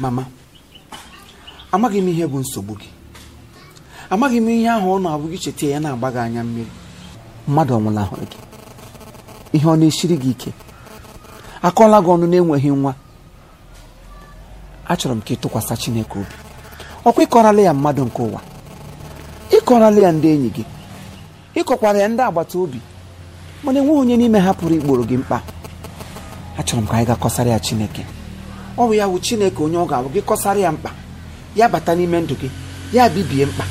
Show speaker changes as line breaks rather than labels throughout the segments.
mama amaghị m ihe bụ nsogbu gị amaghị m ihe ahụ ọ na-abụ gị cheta ya na-agba gị anya mmiri mmadụ ọnwụla ahụrụ gị ihe ọ na-esiri gị ike akọọla gị ọnụ na-enweghị nwa achọrọ m ka ị tụkwasị Chineke obi ọkwa ịkọrala ya mmadụ nke ụwa ịkọrala ya ndị enyi gị ịkọkwara ya ndị agbata obi mana enweghị onye n'ime ha pụrụ igboro gị mkpa achọrọ m ka anyị ga kọsara ya Chineke ọ bụ ya wụ chineke onye ọ ga abụ gị kọsara ya mkpa ya bata n'ime ndụ gị ya bibie mkpa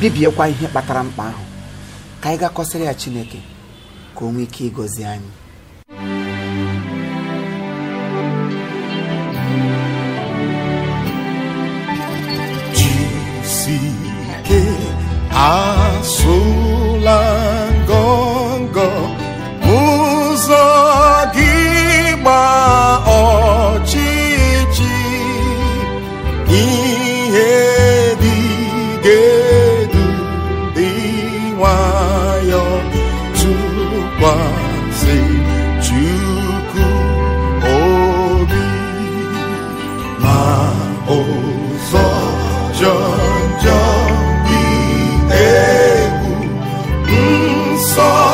bibiekwa ihe kpatara mkpa ahụ ka anyị gaa ya chineke ka o nwee ike ịgọzi anyị asụla ngọngọ ụzọ ihe dị ga-edu dị nwayọ tụkwasị Chukwu obi ma ụzọ jọ njọ dị egwu nsọ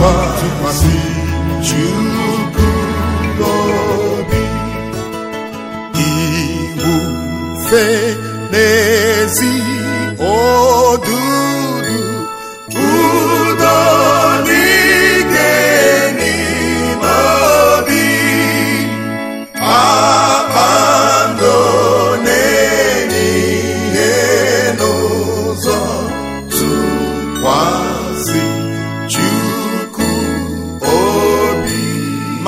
tụkwa tụkwasị Chukwu obi iwufe n'ezi odudu udo n'ike n'ime obi akpando n'ụzọ tụkwasị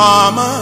Mama